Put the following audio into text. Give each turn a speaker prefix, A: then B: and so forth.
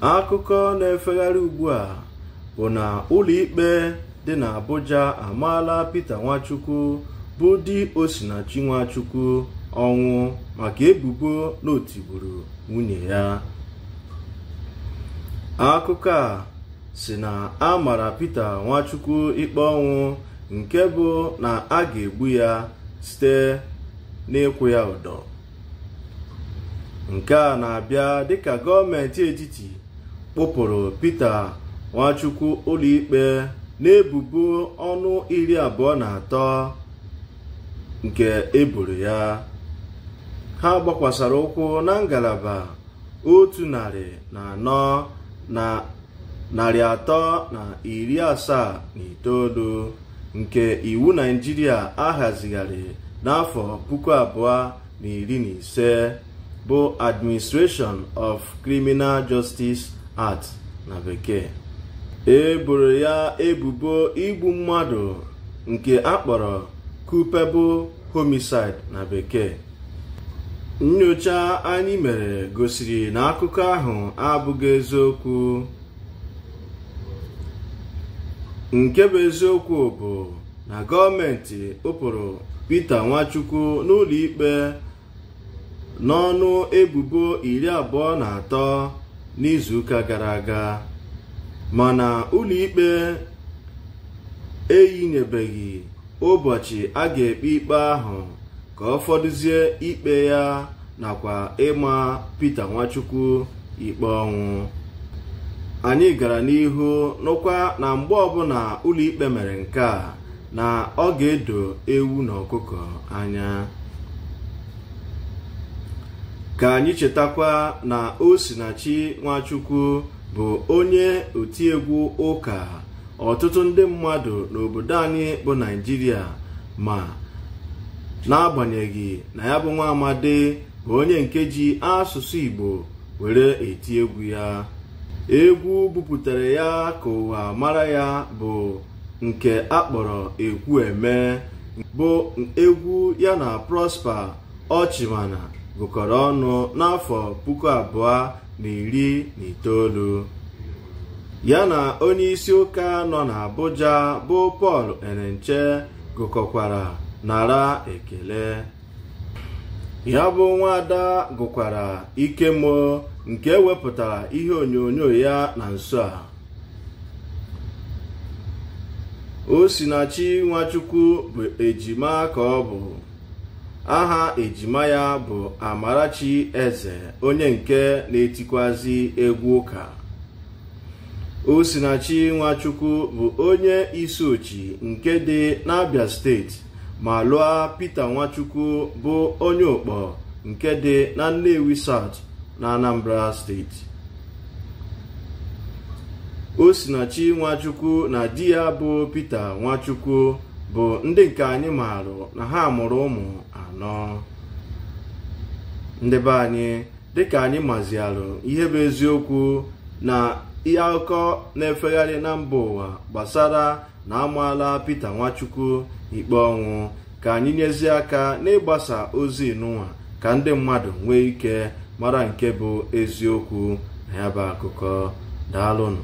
A: akụkọ na-efegharị ugbu a bụ na ụlọikpe dị na Abuja amaala pete Nwachukwu bụ di Osinachi Nwachukwu ọnwụ maka ebubo na o nwunye ya akụkọ a si na a mara Nwachukwu ikpe ọnwụ nke bụ na a ga-egbu ya site n'ịkwụ ya ụdọ nke a na-abịa dịka gọọmenti etiti kpụpụrụ Pita Nwachukwu ụlọikpe n'ebubo ọnụ iri abụọ na atọ nke eboro ya ha gbakwasara ụkwụ na ngalaba otu narị na anọ na narị atọ na iri asaa na itoolu nke iwu Naijiria ahazigharị n'afọ puku abụọ na iri na ise bụ Administration of Criminal Justice art na bekee e boro ya ebubo igbu mmadụ nke akpọrọ kupebụ homicide na bekee nnyocha anyị mere gosiri na akụkọ ahụ abụghị eziokwu nke bụ eziokwu bụ na gọọmenti ụpụrụ Pita Nwachukwu n'ụlọ ikpe n'ọnụ ebubo iri abụọ na atọ n'izuụka gara aga mana ụlọikpe eyinyebeghị ụbọchị a ga-ekpe ikpe ahụ ka ọ fọdụzie ikpe ya nakwa ịma Pita Nwachukwu ikpe ọnwụ anyị gara n'ihu nụkwa na mgbe ọbụla ụlọikpe mere nke a na ọ ga-edo ewu na ọkụkọ anya ka anyị chetakwa na Osinachi Nwachukwu bụ onye otiegwu ụka ọtụtụ ndị mmadụ n'obodo anyị bụ naijiria ma n'agbanyeghị na ya bụ nwa amadi bụ onye nke ji asụsụ Igbo were eti egwu ya egwu buputara ya ka ụwa mara ya bụ nke akpọrọ ekwu eme bụ egwu ya na Prosper Ọchịmana gụkọrọ ọnụ n'afọ puku abụọ na iri na itoolu ya na onye isi ụka nọ Abuja bụ Pọl Enenche gụkọkwara nara ekele ya bụ nwaada gụkwara ikemo nke wepụtara ihe onyonyo ya na nso a Osinachi Nwachukwu bụ ejima ka ọ bụ aha ejima ya bụ Amarachi Eze onye nke na-etikwazi egwu ụka Osinachi Nwachukwu bụ onye isochi nke dị n'Abia steeti ma lụọ Pita Nwachukwu bụ onye ụkpọ nke dị na Nnewi South na Anambra steeti Osinachi Nwachukwu na di ya bụ Pita Nwachukwu bụ ndị nke anyị maarụ na ha mụrụ ụmụ anọ ndị be anyị dịka anyị mazialụ ihe bụ eziokwu na ihe akụkọ na-efegharị na mba ụwa gbasara na amaala Pita Nwachukwu ikpe ọnwụ ka anyị nyezie aka na-ịgbasa ozi n'ụwa ka ndị mmadụ nwee ike mara nke bụ eziokwu na ya bụ akụkọ daalụnụ